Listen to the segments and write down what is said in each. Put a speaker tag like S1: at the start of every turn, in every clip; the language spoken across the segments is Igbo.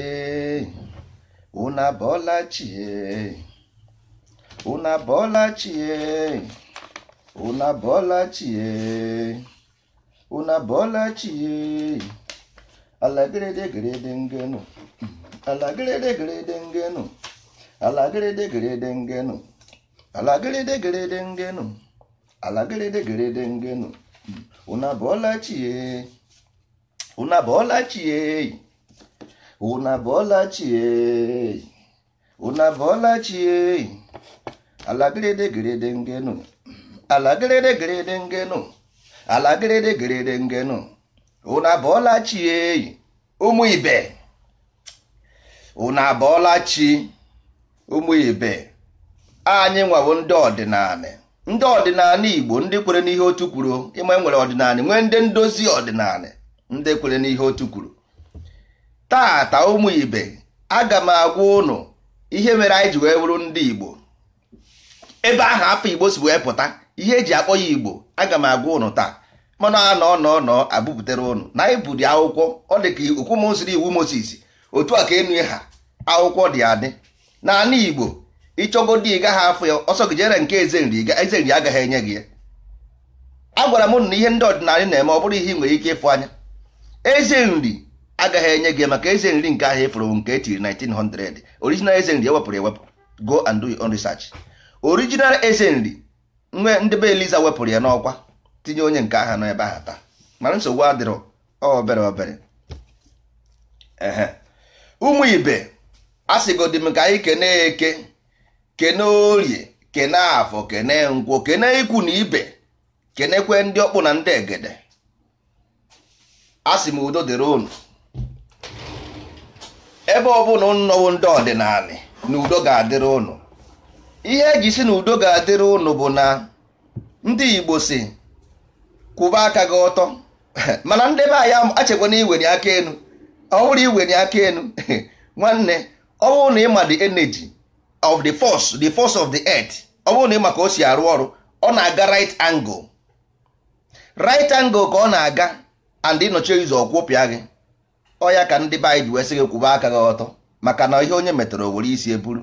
S1: ee chie abọọla chi ee unu abọọla chie una bọlachie una bọlachie alagịrịdị gịrịdị ngenụ ngenu gịrịdị ngenụ alagịrịdị gịrịdị ngenụ una bọlachie ụmụ ibe una bọlachi ụmụ ibe anyị nwawo ndị ọdịnala ndị ọdịnala igbo ndị kwere n'ihe otu kwuru ịma nwere ọdịnala nwee ndị ndozi ọdịnala ndị kwere n'ihe otu kwuru tata ụmụ ibe aga m agwa ụnụ ihe mere anyị ji wee bụrụ ndị igbo ebe ahụ afọ igbo si wee pụta ihe eji akpọ ya igbo aga m agwa ụnụ taa mana a nọ nọ abụpụtara ụnụ na anyị bụdị akwụkwọ ọ dị ka okwu mosiri iwu moses otu a ka enu ha akwụkwọ dị adị na ana igbo ịchọgodi ịga ha afọ ya ọsọ gị jere nke eze nri agaghị enye gị ya agwara m na ihe ndị ọdịnala na-eme ọ bụrụ ihe ị nwere ike ịfụ anya eze nri. agaghị enye gị maka eze nri nke ahịa efuru nke etiri 1900 original eze nri ewepụrụ ewepụ go and do your own research original eze nri nwe ndị be eliza wepụrụ ya n'ọkwa tinye onye nke aha n'ebe ahụ taa mana nsogbu adịrọ obere obere ụmụ ibe asịgodi m ka anyị kene eke kene orie kene afọ kene nkwụ kene ikwu na ibe kenekwe ndị ọkpụ na ndị egede asị m udo dịrị unu ebe ọ bụla nnọwo ndị ọdịnala na udo ga-adịrị ụnụ ihe eji si na udo ga-adịrị ụnụ bụ na ndị Igbo si kwụba aka gị ọtọ mana ndị be achekwa na iweni aka enu ọ bụrụ iweni aka enu nwanne ọ bụrụ na ịma the energy of the force the force of the earth ọ bụrụ na ịma ka o si arụ ọrụ ọ na-aga right angle right angle ka ọ na-aga and ịnọchi ụzọ kwụpịa gị ọya ka ndị be ji wee sị kwụba aka gị ọtọ maka na ihe onye metọrọ were isi eburu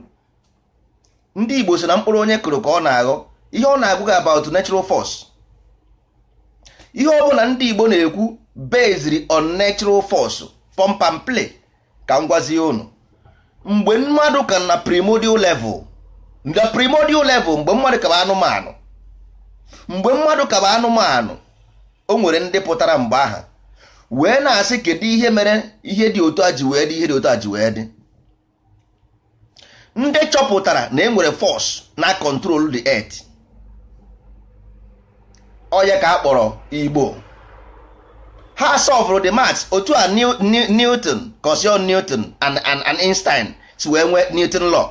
S1: ndị Igbo so na mkpụrụ onye kụrụ ka ọ na-aghọ ihe ọ na-agụ gị about natural force ihe ọ bụla ndị Igbo na-ekwu based on natural force pump and unu mgbe mmadụ ka na primordial level na primordial level mgbe mmadụ ka bụ anụmanụ mgbe mmadụ ka bụ anụmanụ o nwere ndị pụtara mgbe aha wee na-asị kedu ihe mere ihe dị otu a ji wee dị ihe dị otu a ji wee ndị chọpụtara na enwere force na control the earth onye ka a kpọrọ igbo ha solved the maths otu a newton cosio newton and einstein si wee nwee newton law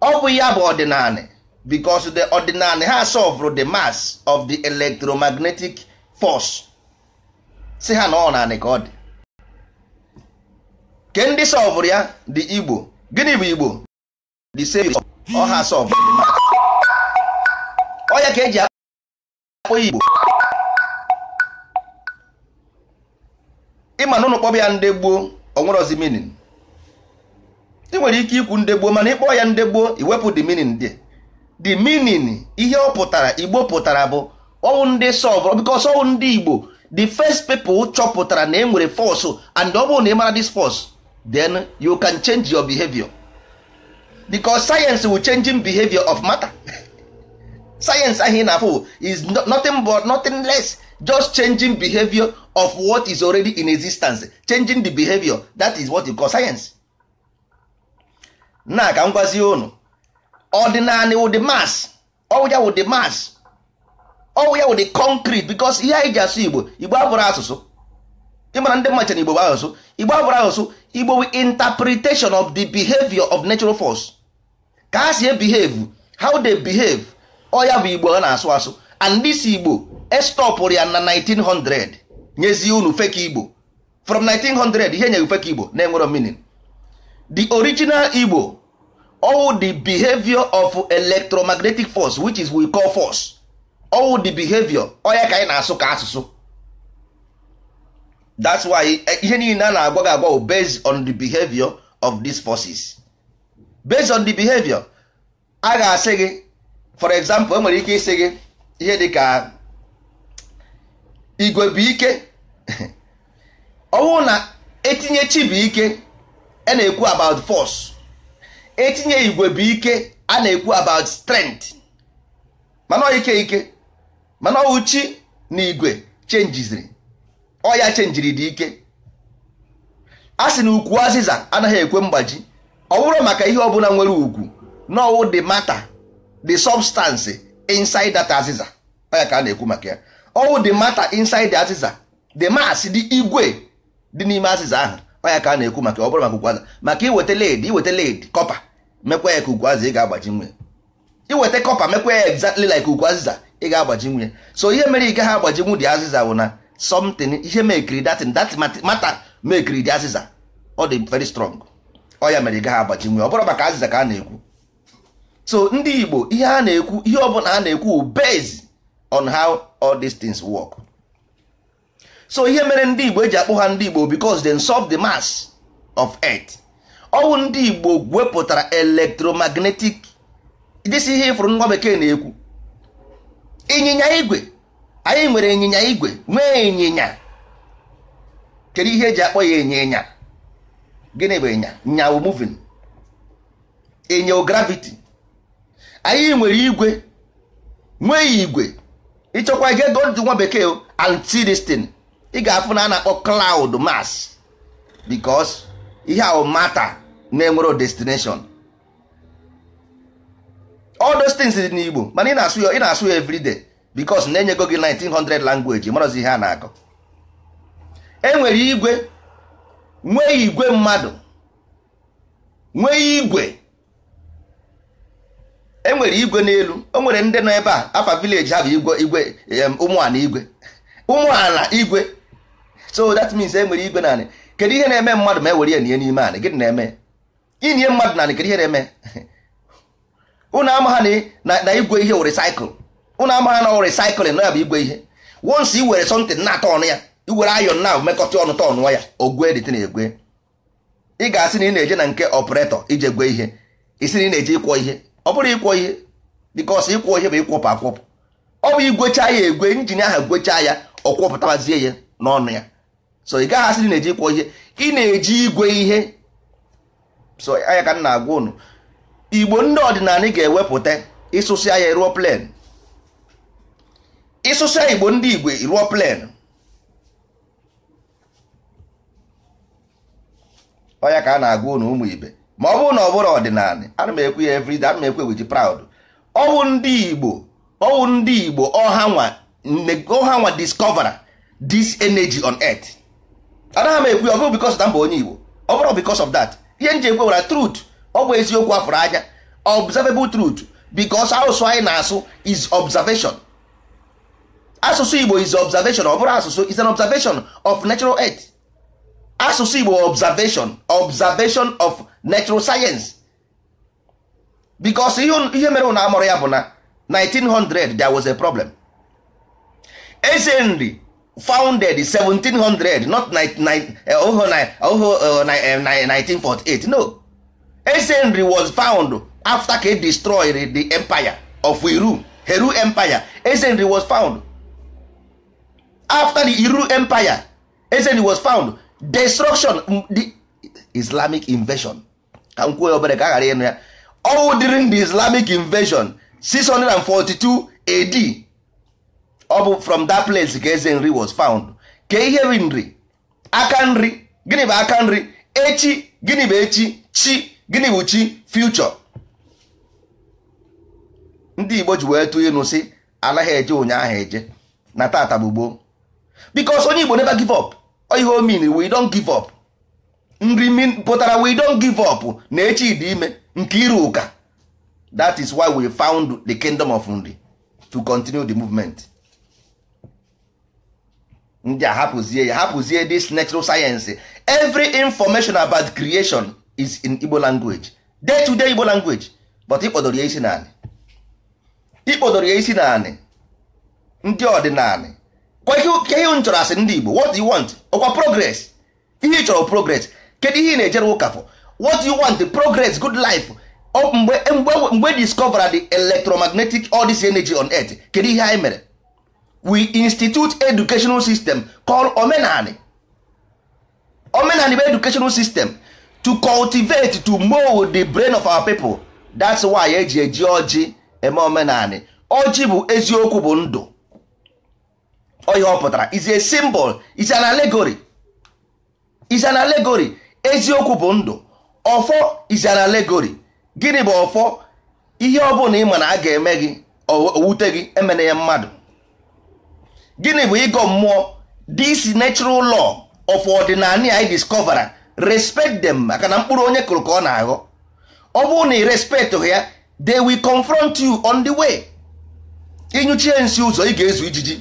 S1: ọ bụ ya bụ ọdịnala because the ọdịnala ha solved the mass of the electromagnetic force si ha na ọ naanị ka ọ dị ke ndị sọvụrụ ya dị igbo gịnị bụ igbo the same ọha sọvụ ọya ka eji akpọ igbo ịma n'ụlọ ụlọ kpọbụ ya ndị gboo onwerozi minin ị nwere ike ikwu ndị gboo mana ịkpọ ya ndị gboo iwepụ the minin dị the minin ihe ọ pụtara igbo pụtara bụ ọnwụ ndị sọvụrụ bikos ọwụ ndị igbo the first people chọpụtara na enwere force and ọ bụrụ na ị mara this force then you can change your behavior because science will changing behavior of matter science ahụ ị na-afụ is nothing but nothing less just changing behavior of what is already in existence changing the behavior that is what you call science na ka m gwazie unu ọdịnala wụ the mass ọwụja wụ the mass ọwụ ya wụ concrete because ihe anyị ji asụ igbo igbo abụrụ asụsụ ịmara ndị mmacha na igbo bụ asụsụ igbo abụrụ asụsụ igbo wi interpretation of the behavior of natural force ka ha si behave how they behave ọya oh, bụ igbo ọ na-asụ asụ and this igbo estọpụrụ ya na 1900 Nyezi unu fake igbo from 1900 ihe nyeghị fake igbo na-enwero meaning the original igbo all the behavior of electromagnetic force which is we call force all the behavior onye ka anyị na-asụ ka asụsụ that's why e, ihe niile a na-agwa gị agwa on the behavior of these forces based on the behavior a ga-asị gị for example enwere ike ịsị gị ihe dị ka igwe bụ ike na etinye chi ike a e na-ekwu about force etinye igwe bụ a na-ekwu about strength mana ike ike mana ọwụ chi na igwe chenjiziri ọya chenjiri dị ike a sị na ukwu azịza anaghị ekwe mgbaji ọ bụrụ maka ihe ọbụla nwere ugwu n'ọwụ ọwụ the matter the substance inside that azịza ọya ka a na-ekwu maka ya ọwụ the matter inside azịza the mass dị igwe dị n'ime azịza ahụ ọya ka a na-ekwu maka ọ bụrụ maka ukwu azịza maka iweta led iweta led kọpa mekwa ya ka ukwu azịza ị ga-agbaji nwe iweta kọpa mekwa ya exactly like ukwu azịza ị ga-agbaji nwunye so ihe mere ị gaghị agbaji nwu dị azịza bụ na something ihe mekiri datin dat mata mekiri dị azịza ọ dị very strong ọ ya mere ị gaghị agbaji nwunye ọ bụrụ maka azịza ka a na-ekwu so ndị Igbo ihe a na-ekwu ihe ọ bụla a na-ekwu bez on how all these things work so ihe mere ndị Igbo eji akpụ ha ndị Igbo because they solve the mass of earth ọwụ ndị Igbo wepụtara electromagnetic dịsi ihe ịfụrụ nwa bekee na-ekwu ịnyịnya igwe anyị nwere ịnyịnya igwe nwee ịnyịnya kedu ihe eji akpọ ya ịnyịnya gịnị bụ ịnya nyawu movin ịnyawu graviti, anyị nwere igwe nwee igwe ịchọkwa ije gold nwa bekee antidestin ị ga-afụ na a na-akpọ klaud mas because ihe ahụ mata na enwere destination all those things dị n'Igbo mana ị na-asụ ya ị na-asụ ya everyday because na-enyego gị 1900 language marazi ihe a na-akọ enwere igwe nwee igwe mmadụ nwee igwe enwere igwe n'elu o nwere ndị nọ ebe a afa village ha bụ igwe igwe ụmụala igwe ụmụala igwe so that means enwere igwe naanị kedu ihe na-eme mmadụ ma ewere ya nye n'ime anị gịnị na-eme inye mmadụ naanị kedu ihe na-eme Ụnụ amagha na igwe ihe were ụnụ unu amagha na were cycle na ya bụ igwe ihe once i were something na-atọ ọnụ ya iwere ayọn na mekọta ọnụ tọ ọnụ ya ogwe dị na-egwe ị ga-asị na ị na-eje na nke operator ije gwe ihe isi na ị na-eje ịkwọ ihe ọ bụrụ ịkwọ ihe because ịkwọ ihe bụ ịkwọpụ akwọpụ ọ bụ igwecha ya egwe injin ahụ gwechaa ya ọ kwọpụtabazie ya n'ọnụ ya so ị gaghị asị na ị na-eje ịkwọ ihe ị na-eji igwe ihe so anya ka m na-agwa ụnụ igbo ndị ọdịnala ga-ewepụta ịsụsịa ya ruo plen ịsụsịa igbo ndị igbo ruo plen ọya ka a na-agụ ụnụ ụmụ ibe ma ọ bụrụ na ọ bụrụ ọdịnala ana m ekwe ya everyday ana m ekwe eweji proud ọwụ ndị igbo ọwụ ndị igbo ọhanwa discovera this energy on earth anaghị m ekwe ya ọ bụrụ because na mba onye igbo ọ bụrụ because of that ihe m ji ekwe wara truth ọ bụ eziokwu afụrụ anya observable truth because asụsụ anyị na-asụ is observation asụsụ Igbo is observation ọ bụrụ asụsụ is an observation of natural earth asụsụ Igbo observation observation of natural science because ihe mere na amụrụ ya bụ na 1900 there was a problem eze nri founded 1700 not 1948 no ezenri was found after ka e destroyed the empire of iru heru empire ezenri was found after the iru empire ezenri was found destruction mm, the islamic invasion ka m kwuo obere ka a ghara ịnụ ya all during the islamic invasion 642 AD ọ bụ from that place ka ezenri was found ka ihe nri aka nri gịnị bụ aka nri echi gịnị bụ echi chi gịnị bụ chi future ndị igbo ji wee tụ ịnụ sị anaghị eje ụnyaahụ eje na tata bụ gboo because onye igbo never give up ihe o mean we don't give up nri pụtara we don't give up na echi dị ime nke iru ụka that is why we found the kingdom of nri to continue the movement ndị a hapụzie ya hapụzie this natural science every information about creation is in Igbo language day to day Igbo language but ịkpọdoro ya isi naanị ịkpọdoro ya isi naanị ndị ọdịnaanị kwa ihe m chọrọ asị ndị Igbo what do you want ọkwa progress ihe ị chọrọ progress kedu ihe na-ejere ụka for what you want progress good life mgbe mgbe discover the electromagnetic all this energy on earth kedu ihe anyị mere we institute educational system called omenani omenani bụ educational system to cultivate to mold the brain of our people that's why eji eji ọjị eme omenanị ọjị bụ eziokwu bụ ndụ ọ pụtara is a symbol is an allegory is an allegory eziokwu bụ ndu ọfọ is an allegory gịnị bụ ọfọ ihe ọ bụla ị ma na a ga-eme gị owute gị emena ya mmadụ gịnị bụ ịgọ mmụọ this natural law of ordinary i discovera respect them maka na mkpụrụ onye kụrụ ka ọ na-aghọ ọ bụrụ na ị respectụghị ya they will confront you on the way ịnyụchie nsi ụzọ ị ga-ezu ijiji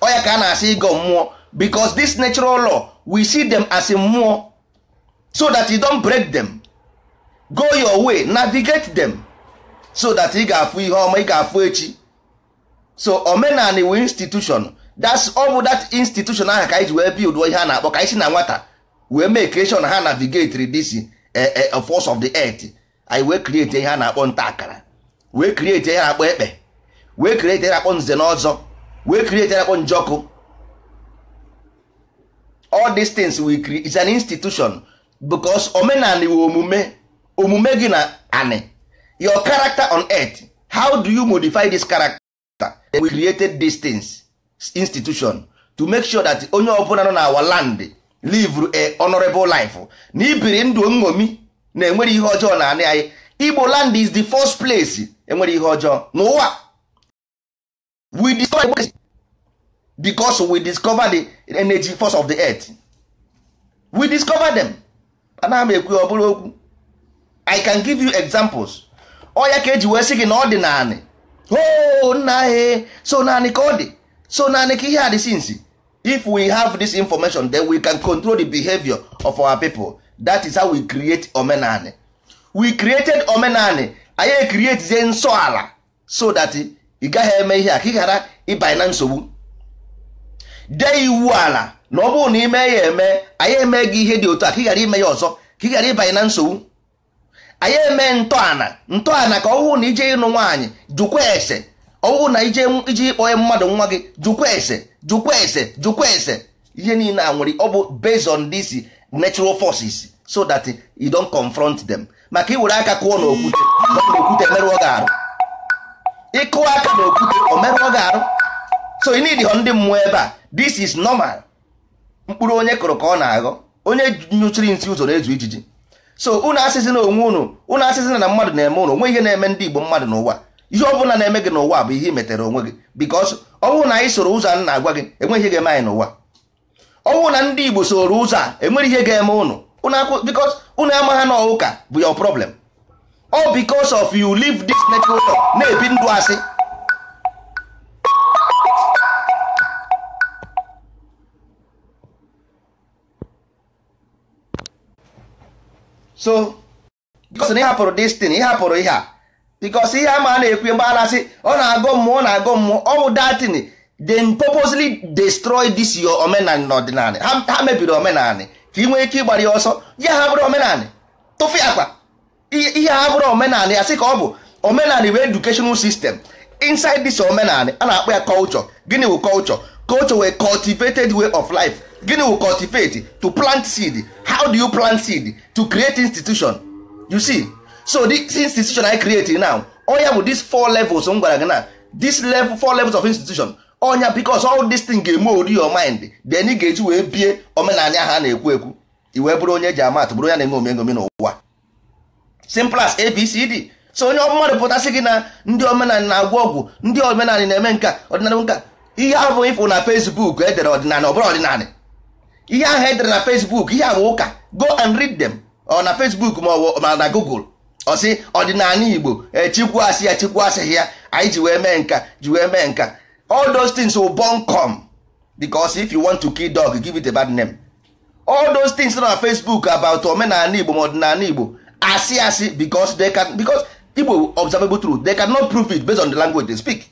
S1: ọ ka a na-asị ịgọ mmụọ because this natural law we see them as mmụọ so that you don't break them go your way navigate them so that ị ga-afụ ihe ọma ị ga-afụ echi so omenani wi institution that's ọ bụ that institution ahụ ka anyị ji wee build ihe a na-akpọ ka anyị si na nwata wee mee creation ha navigatri this eh, eh, force of the earth anyị wee create ihe a na-akpọ nta akara wee create ihe na-akpọ ekpe wee create ihe na-akpọ nze na wee create ihe na-akpọ njọkụ all these things we create is an institution because omenala iwe omume omume gị na ani your character on earth how do you modify this character we created these things institution to make sure that onye ọbụla nọ na our land live a honorable life na ibiri ndụ nṅomi na enwere ihe ọjọọ na anị anyị igbo land is the first place enwere ihe ọjọọ n'ụwa we discover because we discover the energy force of the earth we discover them anaghị m ekwu ọ bụrụ okwu i can give you examples ọ ya ka eji wee sị gị na ọ dị naanị o oh, nna anyị e, so naanị ka ọ dị so naanị ka ihe a dị sinsi if we have this information then we can control the behavior of our people that is how we create omenani we created omenani anyị ekrietizie nsọ ala so that ị gaghị eme ihe a ka ị ghara ịbanye na nsogbu dee iwu ala na ọ bụrụ na ime ya eme anyị eme gị ihe dị otu a ka ị ghara ime ya ọzọ ka ị ghara ịbanye na nsogbu anyị eme ntọala ntọala ka ọ hụ na ije ịnụ nwaanyị jụkwa ese ọwụ na ije iji ịkpọ mmadụ nwa gị jụkwa ese jụkwa ese jụkwa ese ihe niile a nwere ọ bụ based on this natural forces so that you don't confront them maka iwere aka kụọ n'okwute okwute emerụọ gị arụ ịkụọ aka n'okwute o merụọ gị arụ so you need ndị mmụọ ebe a this is normal mkpụrụ onye kụrụ ka ọ na-aghọ onye nyụchiri nsị ụzọ na-ezu ijiji so ụnụ asịzị na onwe ụnụ ụnụ asịzị na mmadụ na-eme ụnụ onwe ihe na-eme ndị Igbo mmadụ n'ụwa ihe ọ bụla na-eme gị n'ụwa bụ ihe i metere onwe gị bikos ọ bụrụ na anyị soro ụzọ a na-agwa gị enweghị ihe ga-eme anyị n'ụwa ọ bụrụ na ndị Igbo soro ụzọ a enwere ihe ga-eme ụnụ bikos ụnụ amaghị na ụka bụ your problem ọ bikos of yu live this natural law na-ebi ndụ asị so bikos na ị hapụrụ destin ị hapụrụ ihe a bikos ihe ama a na-ekwu mgbe a na-asị ọ na-agụ mmụọ na-agụ mmụọ ọ bụ datin they purposely destroy this your omenani na ọdịnala ha mebiri omenani ka ị nwee ike ịgbara ya ọsọ ya ha bụrụ omenani tụfụ akpa ihe ha bụrụ omenani sị ka ọ bụ omenani wee educational sistem inside this omenani a na-akpọ ya culture gịnị wụ culture culture wee cultivated way of life gịnị wụ cultivate to plant seed how do you plant seed to create institution you see so the institution I create now onya bụ this four levels m gwara gị na this level four levels of institution onya because all this thing ga-eme ori your mind then ị ga-eji wee bie omenanya ha na-ekwu ekwu i wee bụrụ onye ji amat bụrụ onye na-eme omengomi n'ụwa simple as abcd so onye mmadụ pụtasị gị na ndị omenala na-agwọ ọgwụ ndị omenala na-eme nka ọdịnala nka ihe ahụ ịfụ na Facebook edere ọdịnala ọ bụrụ ọdịnala ihe ahụ edere na Facebook ihe bụ ụka go and read them ọ na Facebook ma ọ na Google ọsị ọdịnala igbo chikwu asị ya chikwu asịghị ya anyị ji wee mee nka ji wee mee nka all those things will born come because if you want to kill dog give it a bad name all those things na facebook about omenala igbo ma ọdịnala igbo asị asị because they can because igbo observable truth they cannot prove it based on the language they speak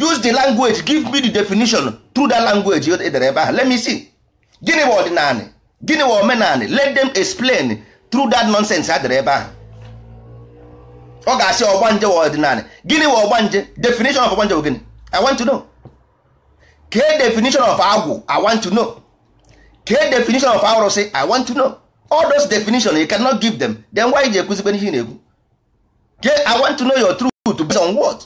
S1: use the language give me the definition through that language edere ebe ahụ let me see gịnị bụ ọdịnala gịnị bụ omenala let them explain through that nonsense ha dere ebe ahụ ọ ga-asị ọgba nje ọdịnala gịnị wa nje definition of ọgbanje bụ gịnị i want to know kee definition of agwụ i want to know kee definition of arụsị i want to know all those definition you cannot give them then why ji ekuzikwe ihe na-ekwu kee i want to know your truth based on what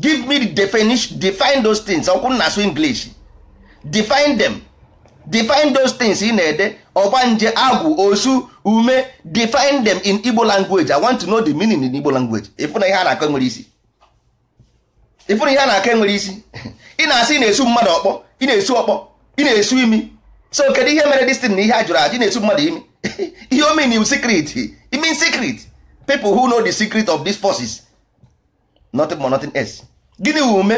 S1: give me the definition define those things ọkwụ na asụ english define them define those things ị na-ede agwụ osu ume define them in igbo language i want to know the meaning in igbo language na ihe a na-akọ enwere isi na ihe a na-akọ enwere isi ị na-asị na-esu mmadụ ọkpọ ị na-esu ọkpọ ị na-esu imi so kedu ihe mere destin na ihe a jụrụ ajụ na-esu mmadụ imi ihe o mean secret it mean secret people who know the secret of these forces nothing more nothing else gịnị wu ume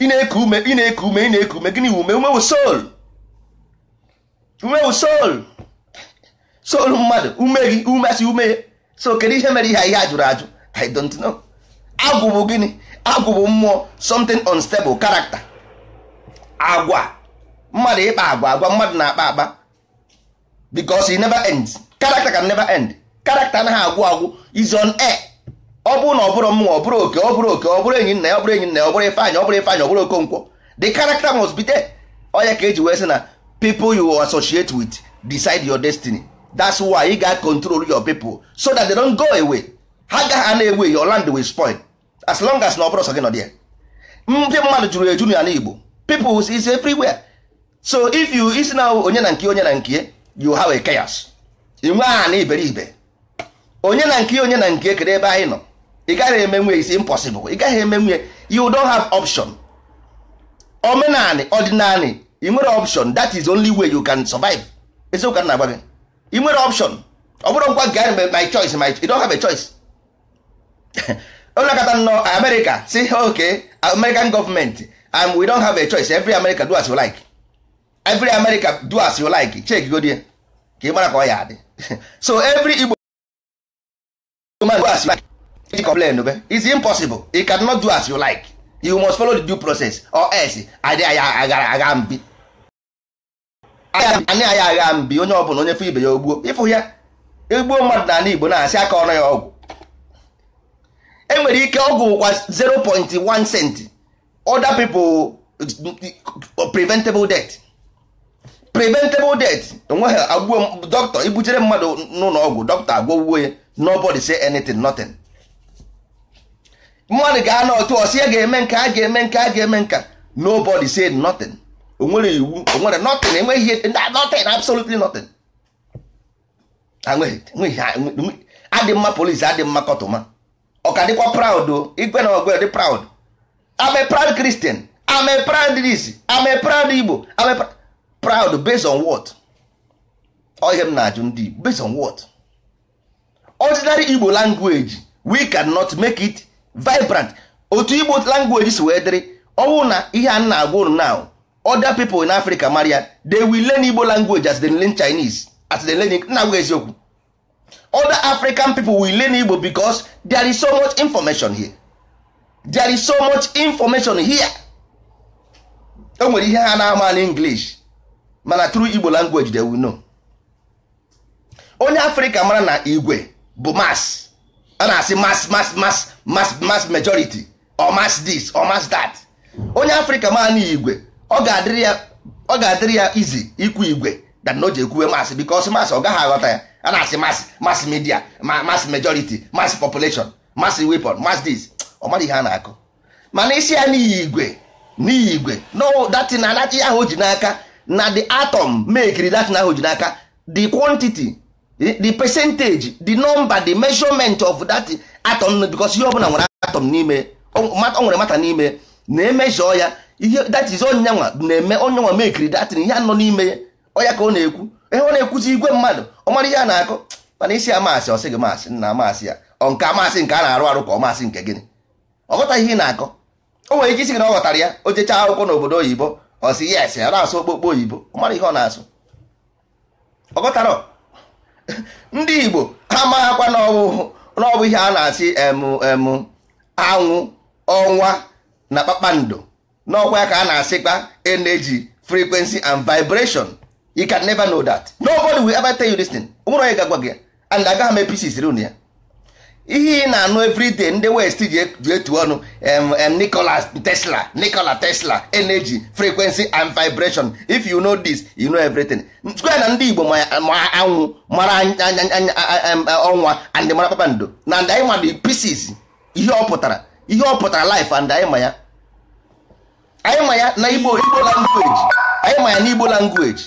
S1: ị na-eku ume ị na-eku ume ị na-eku ume gịnị wu ume ume wu soul ume wu soul so mmadụ ume gị umesi ume so kedu ihe mere ihe ihe ajụrụ ajụ i don't know agwụ bụ gịnị agwụ bụ mmụọ something unstable character agwa mmadụ ịkpa agwa agwa mmadụ na-akpa akpa because it never ends character can never end character anaghị agwụ agwụ is on air ọ bụrụ na ọ bụrụ mmụọ ọ bụrụ oke ọ bụrụ oke ọ bụrụ enyi nna ya ọ bụrụ enyi nna ya ọ bụrụ ifeanyị ọ bụrụ ifeanyị ọ bụrụ okonkwo the character must be there onye ka eji wee sị na people you associate with decide your destiny that's why you got control your people so that they don't go away ha gaghị na ewe your land will spoil as long as na ọ bụrụ sọ gị nọ dị ndị mmadụ jụrụ eju na igbo people is everywhere so if you isi na onye na nke onye na nke you have a chaos inwe nwee na iberibe onye na nke onye na nke kere ebe anyị nọ ị gaghị eme nwe is impossible ị gaghị eme nwe you don't have option omenani ọdịnani i nwere option that is only way you can survive eziokwu na agba gị ị nwere option ọ bụrụ ngwa gị my choice my you don have a choice kata nnọọ America si ok American government and we don have a choice every America do as you like every America do as you like chek godie ka ị mara ka ọ ya adị so every Igbo man do as you like complain be it's impossible you cannot do as you like you must follow the due process or else agara aga mbi anyị anyị agha mbi onye ọbụla onye fụ ibe ya ogbuo ịfụ ya egbuo mmadụ na ala Igbo na-asị aka ọnụ ya ọgwụ enwere ike ọgwụ kwa 0.1 cent other people preventable death preventable death onweghị agbuo dọkịta ibuchere mmadụ n'ụlọ ọgwụ dọkịta agwọgwuo uwe nobody say anything nothing mmadụ ga-anọ otu ọsị ya ga-eme nka a ga-eme nka a ga-eme nka nobody say nothing onwere iwu onwere nothing enweghị ihe nothing absolutely nothing adị mma polisi adị mma kọtụma ka dịkwa proud igwe na ọ dị proud ame proud Christian ame proud this ame proud Igbo ame proud based on what ọ ihe m na-ajụ ndị Igbo based on what ordinary Igbo language we cannot make it vibrant otu Igbo language si wee dịrị ọnwụ na ihe a na-agwa unu now other people in africa maria they will learn igbo language as they learn chinese as they learn na agwa eziokwu other african people will learn igbo because there is so much information here there is so much information here e nwere ihe ha na-ama na english mana through igbo language they will know onye africa mara na igwe bụ mass a na-asị mass mass mass mass mass majority or mass this or mass that onye africa mara na igwe ọ ga-adịrị ya ọ ga-adịrị ya izi ikwu igwe dan na o ji ekwuwe masị because masị ọ gaghị aghọta ya a na-asị masị masị media masị majority masị population masị weapon masị dis. ọ mara ihe a na-akụ mana isi ya n'ihi igwe n'ihi igwe no anaghị ahụ ji n'aka na the atom mekiri datin ahụ ji n'aka the quantity the percentage the number the measurement of that atom because ihe ọbụla nwere atom n'ime ọ nwere mata n'ime na-emezọ ya ihe that is onyanwa na-eme onyanwa mekiri datin ihe anọ n'ime ya ọya ka ọ na-ekwu ihe ọ na-ekwuzi igwe mmadụ ọ mara ihe a na-akọ mana isi amasị ọ sị gị masị nna amasị ya ọ nke amasị nke a na-arụ arụ ka ọ masị nke gịnị ọ ihe ị na-akọ o nwere ike isi gị na ọ ghọtara ya o jechaa akwụkwọ n'obodo oyibo ọ sị yes ya na-asụ okpokpo oyibo ọ mara ihe ọ na-asụ ọ ndị igbo ha maghakwa n'ọbụ ihe a na-asị emu emu anwụ ọnwa na kpakpando n'ọkwa ya ka a na-asịkpa energy frequency and vibration you can never know that nobody will ever tell you this thing nwere onye ga-agwa gị and agaghị m episis run ya ihe ị na-anụ everyday ndị west ji e, etu ọnụ Nikola Tesla Nikola Tesla energy frequency and vibration if you know this you know everything square na ndị Igbo ma anwụ mara ọnwa and mara kpakpando na ndị anyị ma the pieces ihe ọ pụtara ihe ọ pụtara life and anyị ma ya anyị ma ya na igbo igbo language anyị ma ya na igbo language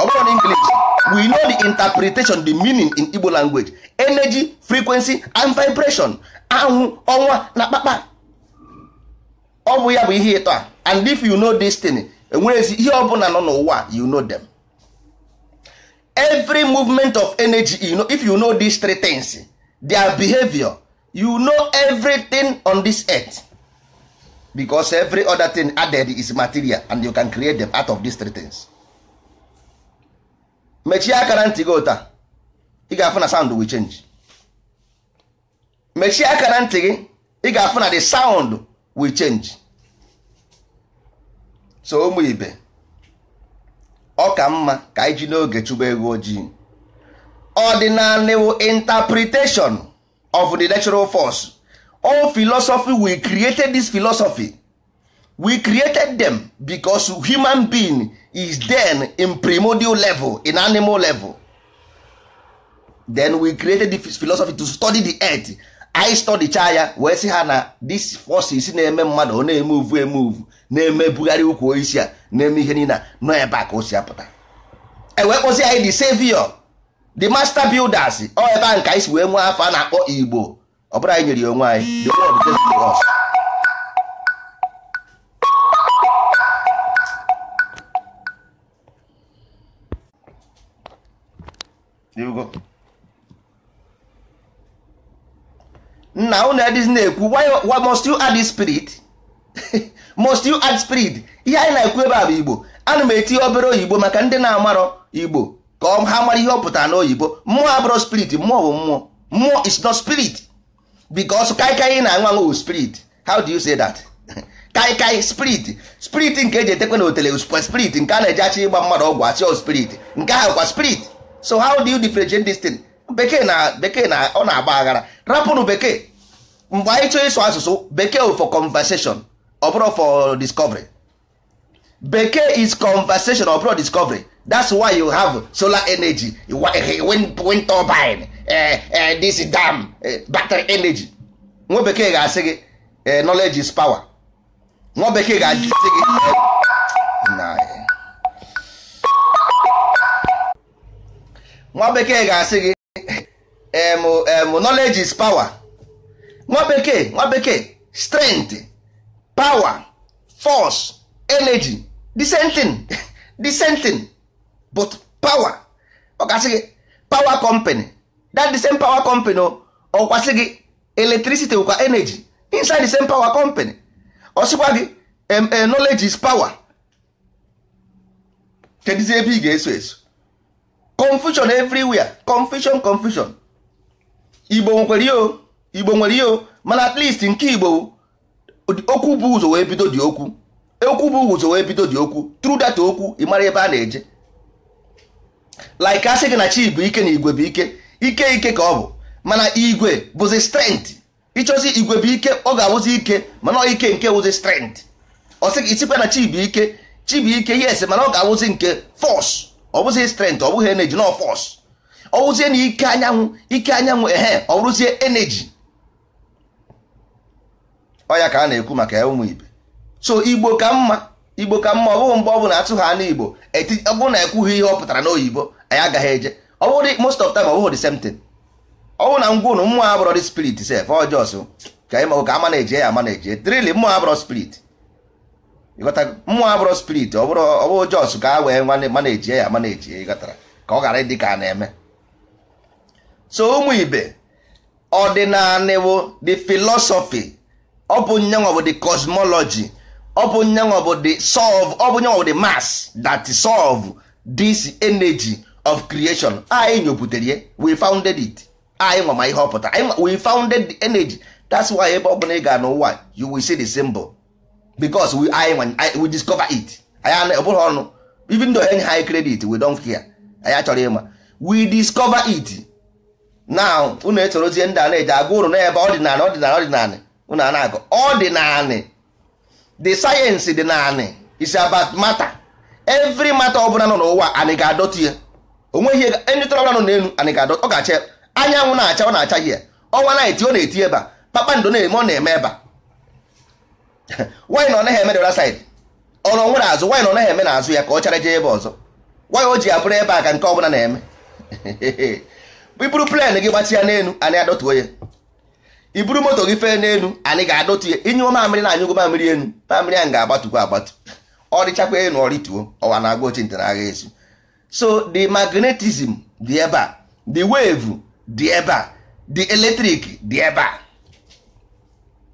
S1: ọ na english we know the interpretation the meaning in igbo language energy frequency and vibration anwụ ọnwa na kpakpa ọ bụ ya bụ ihe ịtọ a and if you know this thing enwerezi ihe ọbụla nọ n'ụwa you know them every movement of energy you know, if you know these three things their behavior you know everything on this earth because every other thing added is material and you can create them out of these three things. mechie akara ntị gị ụta ị ga-afụ na sound will change mechie akara ntị gị ị ga-afụ na the sound will change so ụmụ ibe ọ ka mma ka anyị ji n'oge chụba ego ojii ordinary interpretation of the natural force all philosophy we created this philosophy we created them bicos human being is then in primordial level in animal level then we created this philosophy to study the earth I study chaya wee si ha na this forces na-eme mmadụ ọ na-eme uvu eme uvu na-eme bugharị ukwu isi a na-eme ihe nina nọ ebe a ka o si apụta ewee kpọzi anyị the savior the master builders ọ ebe a nke anyị si wee nwee afọ a na-akpọ igbo ọ bụrụ anyị nyere ya onwe anyị the world just to us nna unu adịghị na-ekwu must you add spirit must you add spirit ihe anyị na-ekwu ebe a bụ igbo ana m etinye obere oyibo maka ndị na-amarọ igbo ka ha mara ihe ọ pụtara n'oyibo mmụọ abụrọ spirit mmụọ bụ mmụọ mmụọ is not spirit because kaikai na anwanwụ spirit how do you say that kaikai spirit spirit nke eji etekwe na otele spirit nke a na-eji achị ịgba mmadụ ọgwụ achị spirit nke ahụ kwa spirit so how do you differentiate this thing bekee na bekee na ọ na-agba aghara rapụnụ bekee mgbe anyị chọọ ịsụ asụsụ bekee for conversation ọ for discovery bekee is conversation ọ discovery that's why you have solar energy wind turbine Eh, eh, this dam eh, battery energy nwa bekee ga-asị gị knowledge is power nwa bekee ga-asị gị nwa bekee ga-asị gị knowledge is power nwa bekee nwa bekee strength power force energy the same thing same but power ọ ga-asị gị power company that the same power company ọkwasị oh, gị electricity wụkwa energy inside the same power company ọsịkwa gị eh, knowledge is power kedizi ebe ị ga-eso eso confusion everywhere confusion confusion igbo nwekwere oh, o nwere ihe oh, mana at least nke igbo okwu bụ ụzọ wee bido dị okwu e, okwu bụ ụzọ wee bido dị okwu through that okwu ị mara ebe a na-eje like asị gị na chi bụ ike na igwe bụ ike ike ike ka ọ bụ mana igwe bụzi strength ịchọzi igwe bụ ike ọ ga-awụzi ike mana ike nke wụzi strength ọ sị isikwa na chi bụ ike chi yes mana ọ ga-awụzi nke fọs ọ bụzi strength ọ bụghị energy na fọs ọ wụzie na ike anyanwụ ike anyanwụ ehe ọ bụrụzie energy ọ ya ka a na-ekwu maka ya ụmụ ibe so igbo ka mma igbo ka mma ọ bụghị mgbe ọ bụla atụ ha n'igbo ọ bụrụ na ekwughị ihe ọ pụtara n'oyibo anyị agaghị eje ọwụrụ most of time ọ ọwụrụ the same thing ọwụ na ngwa unu mmụọ abụrọ dị spirit sef ọjọs ka ịma ka ama na-eji ya ama na-eji trili mmụọ abụrọ spirit ịghọta mmụọ abụrọ spirit ọbụrụ jọs ka a wee nwanne ma na-eji ya ama na-eji ịghọtara ka ọ ghara ịdị ka a na-eme so ụmụ ibe ọdịnanịwo the philosophy ọ bụ nyanwa bụ the cosmology ọ bụ nyanwa bụ the solve ọ bụ nyanwa bụ the mass that solve this energy of creation anyị nyobutere ya we founded it anyị nwa ihe ọpụta we founded the energy that's why ebe ọbụla ị ga n'ụwa you will see the symbol because we anyị we discover it Even though ọnụ even though enye high credit we don't care anyị achọrọ ịma we discover it now unu etorozie ndị a na-eji agwa ụrụ n'ebe ọdịnala ọdịnala ọdịnala unu a na-agụ ọdịnala the science dị naanị is about matter every matter ọbụla nọ n'ụwa anyị ga-adọtụ ya onweghị ndị tọrọ nọ n'elu anyị ga-adọ ọ anyanwụ na-acha ọ na-acha ihe ọnwa na-eti ọ na-eti ebe a kpakpando na-eme ọ na-eme ebe a nwaanyị na ọ naghị eme dora saịd ọrụ nwere azụ nwanyị na ọ naghị eme na ya ka ọ chara jee ebe ọzọ nwaanyị o ji abụrụ ebe a ka nke ọbụla na-eme iburu plen gị gbatị ya n'elu anyị adọtuo ya iburu moto gị fee n'elu anyị ga-adọtu ya inye mamịrị na anyụgo mamịrị elu mamịrị ahụ ga-agbatụkwa agbatu ọ dịchakwa enu ọ rịtuo ọwa na-agwa ochintị na agha ezu so the magnetism dị ebe a the wave dị ebe a the electric dị ebe a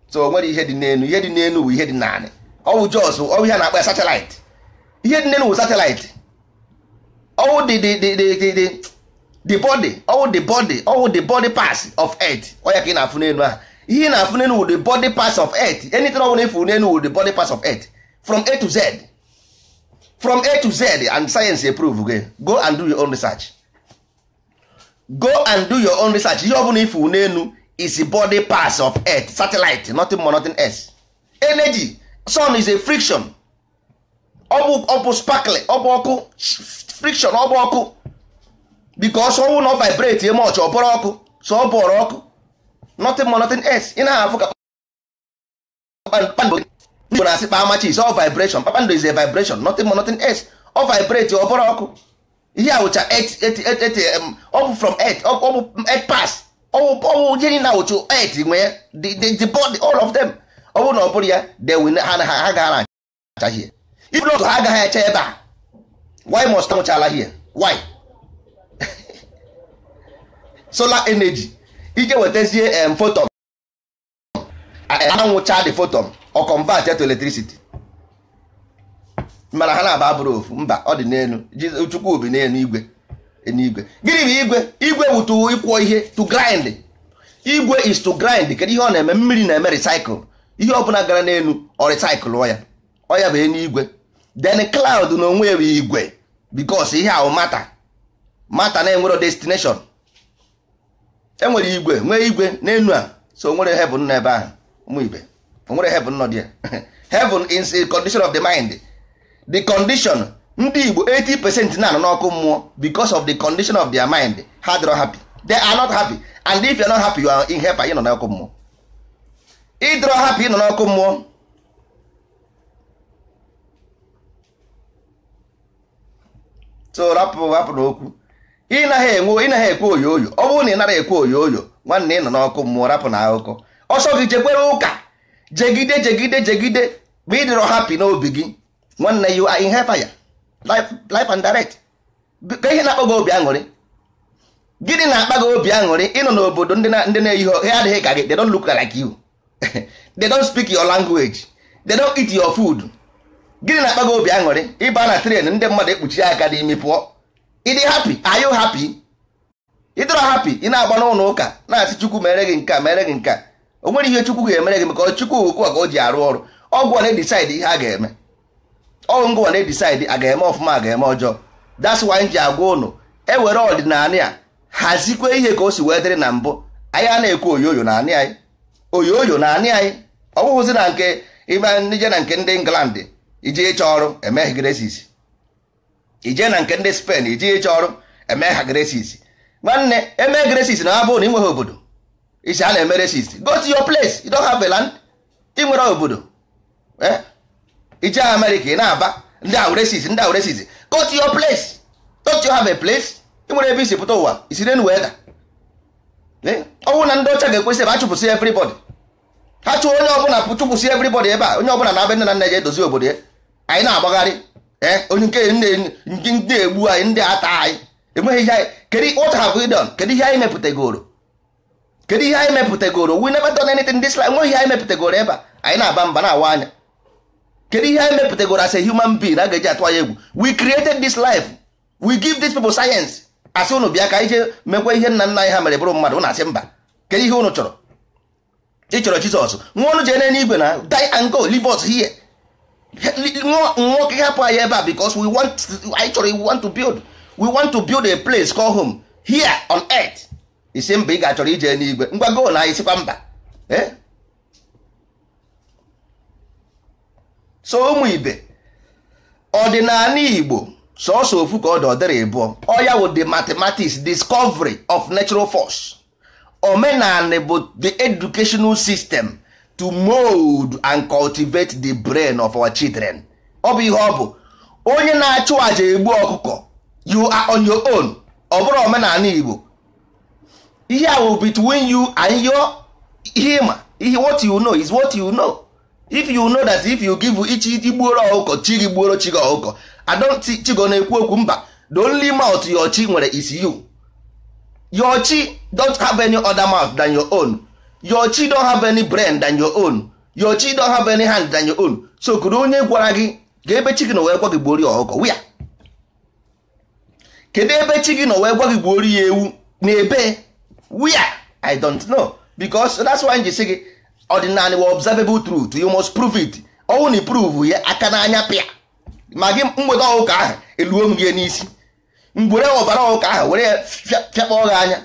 S1: so o nwere ihe dị n'elu ihe dị n'elu bụ ihe dị naanị ọwụ jos ọwụ ihe na-akpa satellite ihe dị n'elu bụ satellite ọwụ dị dị dị dị dị body ọwụ the body ọwụ the body pass of earth ọya ka ị na-afụ n'elu ahụ ihe ị na-afụ n'elu wụ the body pass of earth anything ọ bụla ịfụ n'elu wụ the body pass of earth from a to z from a to z and science approve gị go and do your own research go and do your own research ihe ọbụla ifu n'elu is body parts of earth satellite nothing more nothing else energy sun is a friction ọbụ bụ sparkle ọ ọkụ friction ọbụ ọkụ because ọnwụ na vibrate e much ọ bụrụ ọkụ so ọ ọkụ nothing more nothing else ị na-ahụ ka igbo na-asị kpa amachi is all vibration kpakpando is a vibration nothing more nothing else ọ vibrate ọbụrụ ọkụ ihe a wụcha ọ bụ from earth ọ earth pass ọwụ jiri na wụcha earth nwee the body all of them ọ bụrụ na ọ bụrụ ya ha gaghara acha hie ibụrụ otu ha agaghị acha ebe a why must anwụchala hie why solar energy ije wetazie um, photon anwụcha the photon ọ convert to electricity mana ha na-aba abụrụ ofu mba ọ dị n'elu chukwu bi n'elu igwe n'igwe gịnị bụ igwe igwe bụ ịkwọ ihe to grind igwe is to grind kedu ihe ọ na-eme mmiri na-eme recycle ihe ọbụla gara n'elu ọ recycle ọya ọya bụ enu igwe then cloud na onwe bụ igwe because ihe ahụ mata mata na-enwero destination enwere igwe nwee igwe n'elu a so nwere heaven n'ebe ahụ ụmụ ibe onwere heaven nọ dị ya heaven is a condition of the mind the condition ndị Igbo 80 percent na-anọ n'ọkụ mmụọ because of the condition of their mind ha dịrọ happy they are not happy and if you are not happy you are in hell ịnọ n'ọkụ mmụọ ịdịrọ happy ịnọ n'ọkụ mmụọ so rapụ rapụ n'okwu ịnaghị enwe ịnaghị ekwe oyo oyo ọ bụrụ na ị nara ekwe oyo oyo nwanne ịnọ n'ọkụ mmụọ rapụ na akụkọ ọsọ gị jekwere ụka jegide jegide jegide ma ịdịrọ hapi n'obi gị nwanne you are in hellfire life and direct ka ihe na-akpọ gị obi aṅụrị gịnị na-akpa gị obi aṅụrị ịnọ n'obodo ndị na-eyighị ha adịghị ka gị they don't look like you they don't speak your language they don't eat your food gịnị na-akpa gị obi aṅụrị ịba na tren ndị mmadụ ekpuchi aka n'imi pụọ ịdị hapi are you happy ịdịrọ hapi ị na-agba n'ụlọ ụka na-asị chukwu mere gị nke mere gị nke a o ihe chukwu ga-emere gị maka chukwu ukwu ka o ji arụ ọrụ ọgwụ na-edisaidi ihe a ga-eme ọgwụ na-edisaidi a ga-eme ọfụma a ga-eme ọjọọ that's why ji agwa ụnụ e were ọdịnala ya hazikwe ihe ka o si wee dịrị na mbụ anyị a na-ekwu oyoyo na anị anyị oyoyo na anị anyị ọ na nke ije na nke ndị England ije ịchọ ọrụ emegh gresis ije na nke ndị spen ije ịchọ ọrụ emegh ha gresis nwanne emee gresis na abụrụ na ịnweghị obodo isi a na-eme resist go to your place you don't have a land ị nwere obodo ije eh? Amerika ị na-aba ndị ahụ resist ndị ahụ resist go to your place don't you have a place ị nwere ebe isi pụta ụwa isi renu wee da eh? ọ na ndị ọcha ga-ekwesị ebe a chụpụsị everybody ha chụọ onye ọbụla chụpụsị everybody ebe a onye ọbụla na-abịa nne na nna ya edozi obodo ya anyị na-agbagharị ee eh? onye nke ndị egbu anyị ndị ata anyị enweghị ihe anyị kedu what have we done kedu ihe anyị mepụtagoro kedu ihe anyị mepụtagoro we never done anything this life nweghị ihe anyị mepụtagoro ebe a anyị na-aba mba na-awa anya kedu ihe anyị mepụtagoro as a human being a ga-eji atụ anya egwu we created this life we give these people science asị unu bịa ka anyị jee mekwa ihe nna nna anyị ha mere bụrụ mmadụ na-asị mba kedu ihe unu chọrọ ị chọrọ Jizọs nwa ọnụ jee n'igwe na die and go leave us here nwoke hapụ anyị ebe a because we want anyị chọrọ we want to build we want to build a place called home here on earth isi mba ị ga-achọrọ ije n'igwe ngwa go na isikwa mba eh? so ụmụ ibe ọdịnala igbo sọsọ ofu ka ọ dị ọdịrị ịbụọ ọ ya wụ the mathematics discovery of natural force omenala bụ the educational system to mold and cultivate the brain of our children ọ bụ ihe ọ bụ onye na-achụ àjà egbu ọkụkọ you are on your own ọ bụrụ omenala igbo ihe ahụ between you and your ihe ihe what you know is what you know if you know that if you give ichi igbuoro ọkụkọ chi gị gbuoro chi gị ọkụkọ adọnti chigo na-ekwu okwu mba the only mouth your chi nwere is you your chi don't have any other mouth than your own your chi don't have any brain than your own your chi don't have any hand than your own so kedu onye gwara gị ga ebe chi gị nọ wee gwa gị gbuori ya wia kedu ebe chi gị nọ wee gwa gị gbuori ya ewu na ebe where i don't know because that's why nji si gị ordinary wa observable truth you must prove it ọnwụ na prove ya aka n'anya pịa ma gị mgbede ọụka ahụ eluo m gị n'isi mgbere ọbara ụka ahụ were ya fịakpọọ gị anya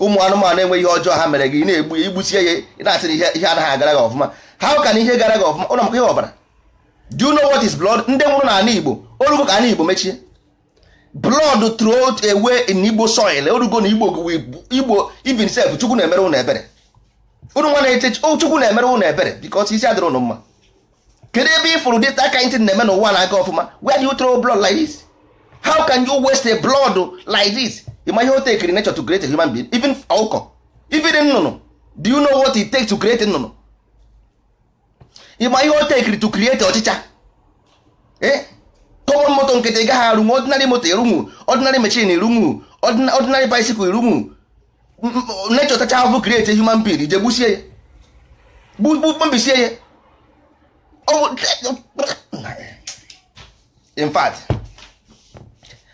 S1: ụmụ anụmanụ enweghị ihe ọjọọ ha mere gị na-egbu ya igbusie ya ị na-asịrị ihe anaghị agara gị ọfụma ha ụka na ihe gara gị ọfụma ụlọ maka ihe ọbara do you know what is blood ndị nwụrụ n'ala Igbo olugo ka ala Igbo mechie blood throughout away in igbo soil orugo na igbo igbo even self chukwu na-emere ụnụ ebere unu nwa na-eche chukwu na-emere ụnụ ebere because isi adịrị ụnụ mma kedu ebe ị fụrụ dịta aka ntị na-eme n'ụwa na-aga ọfụma where you throw blood like this how can you waste a blood like this ịma ihe o tekiri nature to create a human being even ọkụkọ even nnụnụ do you know what it take to create nnụnụ ịma ihe o tekiri to create ọchịcha eh kọmọn moto nkịtị gaghị arụnwu ọdịnarị moto erunwu ọdịnarị mechin irunwu ọdịnarị baisikụl irunwu nechọ tacha ahụhụ krieti human being ije gbusie ya gbubisie ya in fact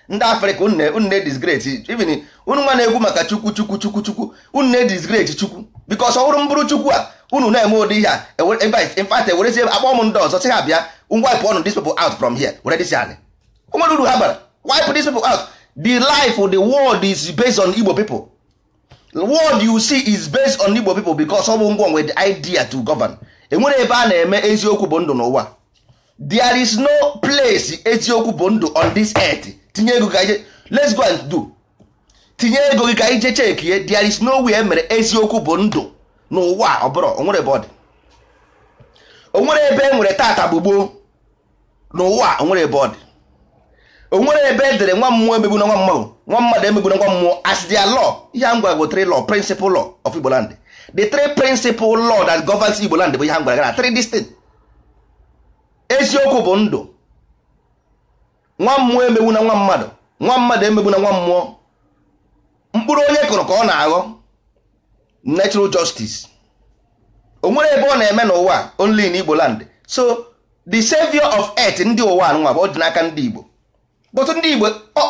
S1: ndị afrịka unne disgreti even unu nwa na-egwu maka chukwu chukwu chukwu chukwu unu na-edisgreti chukwu bikos ọhụrụ mbụrụ chukwu a unu na-eme ụdị ihe a e in fact ewerezie akpọ m ndị ọzọ sị ha bịa wipe one of these people out from here were this yani nwere uru ha bara wipe these people out the life of the world is based on igbo people the world you see is based on igbo people ọ bụ the idea to govern enwere ebe a na-eme eziokwu bụ ndụ n'ụwa there is no place eziokwu bụ ndụ on this earth tinye ego ka ije let's go and do tinye ego gị ka ije there is no way emere eziokwu bụ ndụ n'ụwa ọ bụrụ onwere ebe ọ dị ebe e nwere n'ụwa onwere ebe ọ dị onwere ebe edere nwa mmụọ emegbu na nwa mmụọ nwa mmadụ emegbu na nwa mmụọ as their ihe a gwara bụ lọ law principal law of Igbo land the three principal law that Igbo land bụ ihe a gara eziokwu bụ ndụ nwa mmụọ emegbu na nwa mmadụ nwa mmadụ emegbu na nwa mmụọ mkpụrụ onye kụrụ ka ọ na-aghọ natural justice onwere ebe ọ na-eme n'ụwa only in Igbo land so the savior of earth ndị ụwa nwa bụ dị n'aka ndị Igbo but ndị Igbo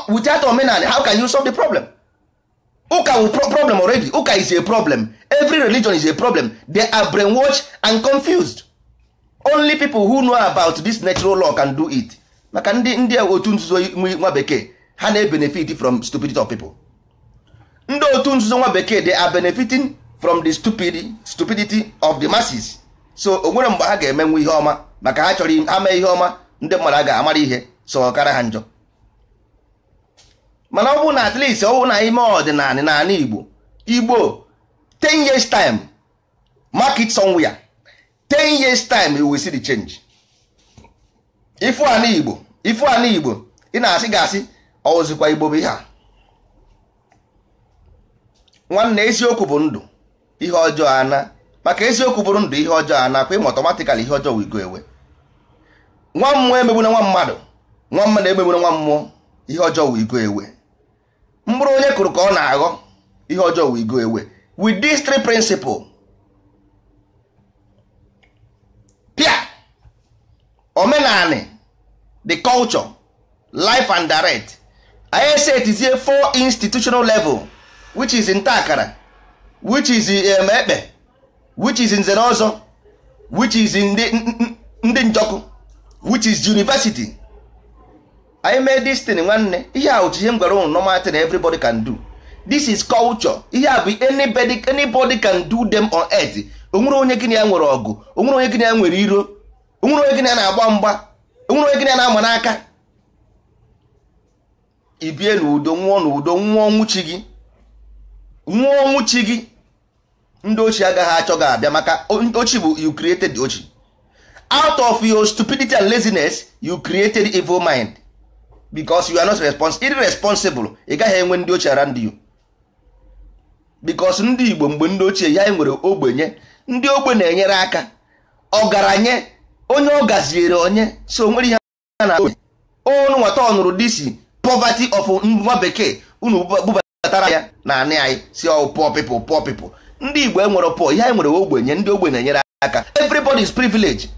S1: without omenala how can you solve the problem ụka wu problem already ụka is a problem every religion is a problem they are brainwashed and confused only people who know about this natural law can do it maka ndị ndị otu nzuzo nwa bekee ha na-ebenefit from stupidity of people ndị otu nzuzo nwa bekee they are benefiting from the stupid stupidity of the masses so o nwere mgbe ha ga-emenwe ihe ọma maka ha chọrọ ha mee ihe ọma ndị mmadụ a ga-amara ihe so ọ kara ha njọ mana ọ bụ na at least ọ bụ na ime ọdịnala n'ala Igbo Igbo 10 years time market somewhere 10 years time you will see the change ifu ana Igbo ifu ana Igbo ị na-asị gasị ọ Igbo bụ ihe a nwanne eziokwu bụ ndụ ihe ọjọọ ana maka eziokwu bụrụ ndụ ihe ọjọọ a nakwa ịma ihe ọjọọ wigo ewe nwa mmụọ emegbuna nwa mmadụ nwa mmadụ emegbuna nwa mmụọ ihe ọjọọ wigo ewe Mbụrụ onye kụrụ ka ọ na-aghọ ihe ọjọọ wigo ewe with these three principles pia the culture life and direct anyị etizie four institutional level which is ntakara which is um, ekpe which is nzere ọzọ which is ndị njọkụ which is university anyị mee this nwanne ihe a otu ihe m gwara ụnụ normal thing everybody can do this is culture ihe a bụ anybody anybody can do them on earth onwere onye gịnị ya nwere ọgụ onwere onye gịnị ya nwere iro onwere onye gịnị ya na-agba mgba onwere onye gịnị ya na-ama n'aka ibie n'udo nwụọ n'udo nwụọ nwụchi gị nwụọ nwụchi gị ndị ochi agaghị achọ gị abịa maka ndị ochi bụ you created ochi out of your stupidity and laziness you created evil mind because you are not responsible irresponsible ị gaghị enwe ndị ochie around you because ndị Igbo mgbe ndị ochie ya nwere ogbenye ndị ogbe na-enyere aka ọgaranya onye ọ gaziere onye so nwere ihe a na onu nwata ọ nụrụ disi poverty of nwa bekee unu bubatara ya na anị anyị si ọ poor people poor people ndị igbo enwere pụọ, ihe anyị nwere ogbenye ndị ogbenye nyere aka everybody is privilege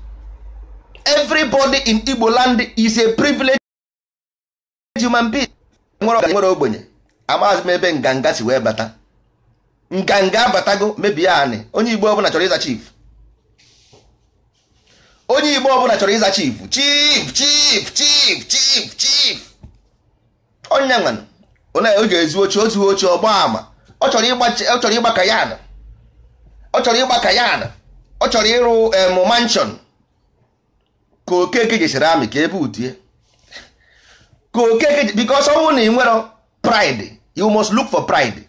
S1: everybody in igbo land is a privilege human being e nwere ogbenye e amaghịzị m ebe nganga si wee bata nganga abatago mebie anị onye igbo ọbụla chọrọ ịza chief onye igbo ọbụla chọrọ ịza chief chief chief chief chief chief onye nwana onye ga ezi ochie o ochie ọgba ama ọ chọrọ ịgba ka ya ọ chọrọ ịgba kayan ọ chọrọ ịrụ em ka okeke ji serami ka ebe utie ka okeke because ọnwụ na ị nwere pride you must look for pride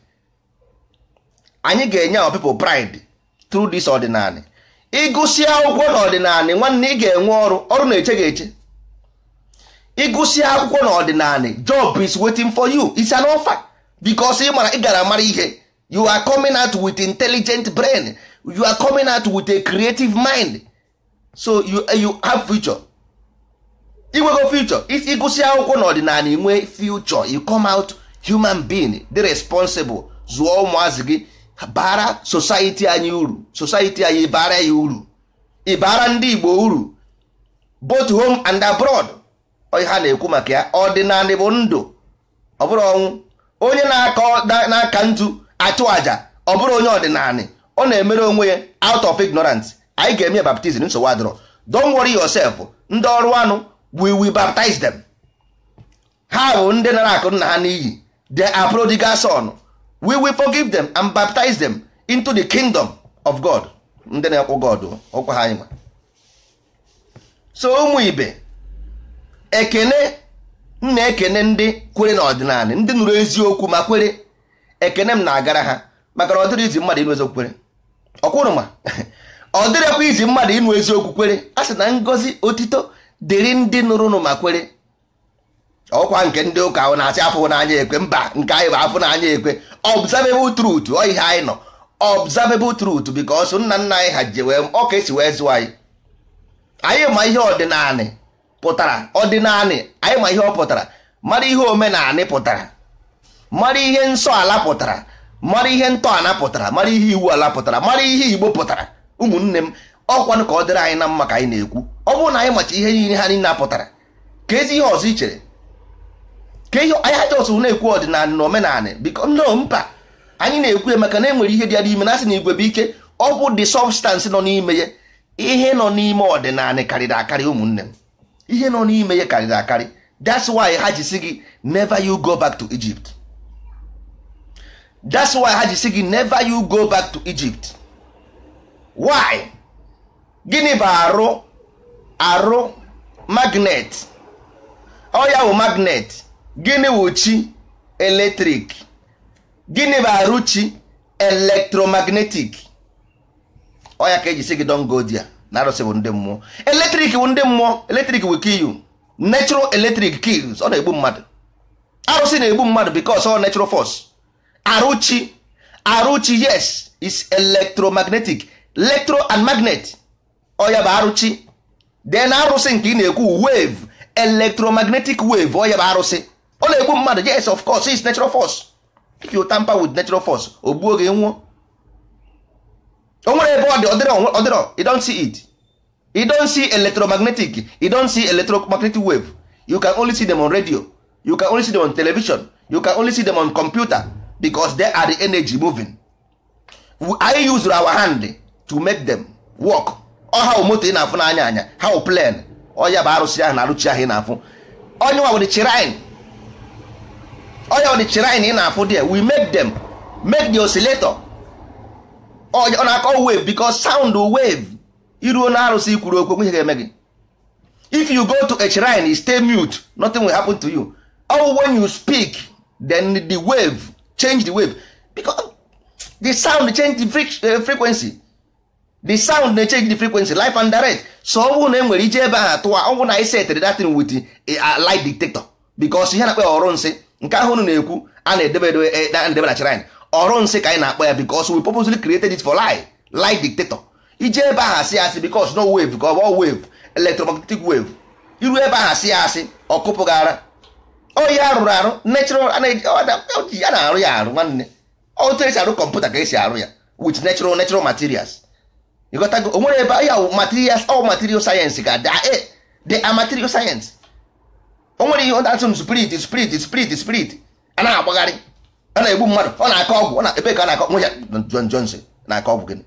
S1: anyị ga-enye our people pride through this ọdịnala ịgụsị akwụkwọ n'ọdịnala nwanne ị ga-enwe ọrụ ọrụ na-eche gị eche ịgụsi akwụkwọ n'ọdịnala job is waiting for you it's an offer because ị mara ị gara mara ihe you are coming out with intelligent brain you are coming out with a creative mind so you, eh, you have future inwego future ịgụsị akwụkwọ n'ọdịnala inwe future you come out human being dị responsible zuo ụmụazị gị bara society anyị uru society anyị bara ya uru ịbara ndị Igbo uru both home and abroad ha na-ekwu maka ya ọdịnala bụ ndụ ọ bụrụ ọnwụ onye na-aka ntu achụ àjà ọ bụrụ onye ọdịnala ọ na-emere onwe ya out of ignorance anyị ga-eme baptizim nsogbu adịrọ don't worry yourself ndị ọrụ anụ we will baptize them ha bụ ndị nara akụ nna ha n'iyi the are son we will forgive them and baptize them into the kingdom of God ndị na-ekwu God ọkwa ha anyị so ụmụ ibe ekene na-ekene ndị kwere n'ọdịnala ndị nụrụ eziokwu ma kwere ekene m na-agara ha maka na ọ izi mmadụ ịnụ eziokwu kwere ọkwụrụ ma ọ dịrịkwa izi mmadụ ịnụ eziokwu kwere a sị na ngozi otito dịrị ndị nụrụnụ ma kwere ọkwa nke ndị ụka ahụ na-asị afọ n'anya ekwe mba nke anyị bụ afọ n'anya ekwe observable truth ọ ihe anyị nọ observable truth ọsụ nna nna anyị ha ji wee ọka esi wee zụọ anyị anyị ma ihe ọdịnanị pụtara ọdịnanị anyị ma ihe ọ pụtara mara ihe omenanị pụtara mara ihe nsọ ala pụtara mara ihe ntọala pụtara mara ihe iwu ala pụtara mara ihe igbo pụtara ụmụnne m ọkwanụ ka ọ dịrị anyị na mma ka anyị na-ekwu ọ bụrụ na anyị macha ihe niile ha niile apụtara ka ezi ihe ọzọ chere ka ihe anyị ajọsụ na-ekwu ọdịnala na omenala biko no mpa anyị na-ekwu ya maka na enwere ihe dị ya n'ime na-asị na igwe bụ ike ọ bụ dị substance nọ n'ime ya ihe nọ n'ime ọdịnala karịrị akarị ụmụnne m ihe nọ n'ime ya karịrị akarị that's why ha ji si gị never you go back to Egypt that's why ha ji gị never you go back to Egypt why gịnị bụ arụ arụ magnet ọ bụ magnet gịnị bụ chi eletrik gịnị bụ arụ chi electromagnetic ọ ya ka eji si gị don go there na arụsị bụ ndị mmụọ eletrik bụ ndị mmụọ eletrik will kill you natural electric kills ọ na-egbu mmadụ arụsị na-egbu mmadụ because ọ natural force arụchi arụchi yes is electromagnetic electro and magnet ọya bụ arụchi then arụsị nke ị na-ekwu wave electromagnetic wave oya bụ arụsị ọ na-egbu mmadụ yes of course is natural force if you tamper with natural force o gbuo gị nwụọ o nwere ebe ọ dị ọdịrọ see it you don't see electromagnetic you don't see electromagnetic wave you can only see them on radio you can only see them on television you can only see them on computer because they are the energy moving anyị use our hand to make them work ọha moto ị na-afụ n'anya anya ha plan ọya bụ arụsị ahụ na arụchi ahụ ị na-afụ onye nwa wụdị chirine ọya wụdị chirine ị na-afụ there we make them make the oscillator ọ na-akọ wave because sound wave iruo na arụsị kwuru okwu ihe ga-eme gị if you go to a shrine stay mute nothing will happen to you or when you speak then the wave change the wave because the sound change the uh, frequency the sound na change the frequency life and direct so ọ bụrụ na enwere ije ebe ahụ tụwa ọ bụrụ na anyị e setịrị datin wit a light detector bikos ihe na-akpọ ọrụ nsị nke ahụ unu na-ekwu a na-edebe edebe e, na chirine ọrụ nsị ka anyị na-akpọ ya bikos we purposely created it for light light detector ije ebe ahụ asị asị bikos no wave ka ọ bụ wave electromagnetic wave iru ebe ahụ asị ya asị ọkụpụgara oyi arụrụ arụ natural a na-arụ ya arụ nwanne otu esi arụ kọmputa ka esi arụ ya with natural natural materials ịghọtago o nwere ebe ya materials ọ material sayensị ka de a material sayensị o nwere ihe ọdatụ spirit spirit spirit spirit a na-agbagharị a na-egbu mmadụ ọ na-akọ ọgwụ ọ na ebe ka a na-akọ nwe ya John Johnson na-akọ ọgwụ gịnị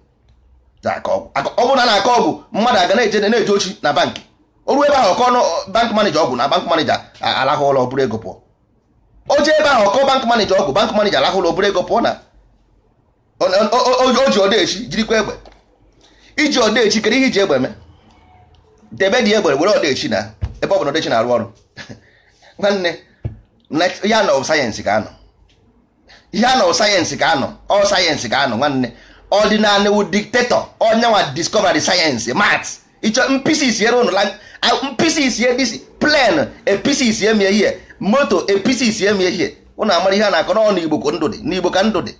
S1: ọ bụrụ na a na-akọ ọgwụ mmadụ aga na-eje na-eje ochi na bankị oru ebe ahụ kọ bank manager ọgwụ na bank manager alahụ ụlọ bụrụ ego pụọ o ebe ahụ kọ bank manager ọgwụ bank manager alahụ ụlọ bụrụ ego pụọ na o ji odechi jirikwa egbe iji odechi kedu ihe iji egbe mee debe dị egbe were odechi na ebe ọ bụ na odechi na-arụ ọrụ nwanne ihe anọ sayensị ka anọ ihe anọ sayensị ka anọ ọ sayensị ka anọ nwanne ọdịnala wu diktetọ onye nwa sayensị mat ịchọ mpisi isi isiere ụnụ mpisi isi ebisi plen episi isi mie ihe moto episi isi mie ihe ụnụ amara ihe a na-akọ n'ọnụ igbo ka ndụ dị n'igbo ka ndụ dị